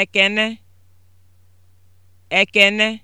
Ekene, Ekene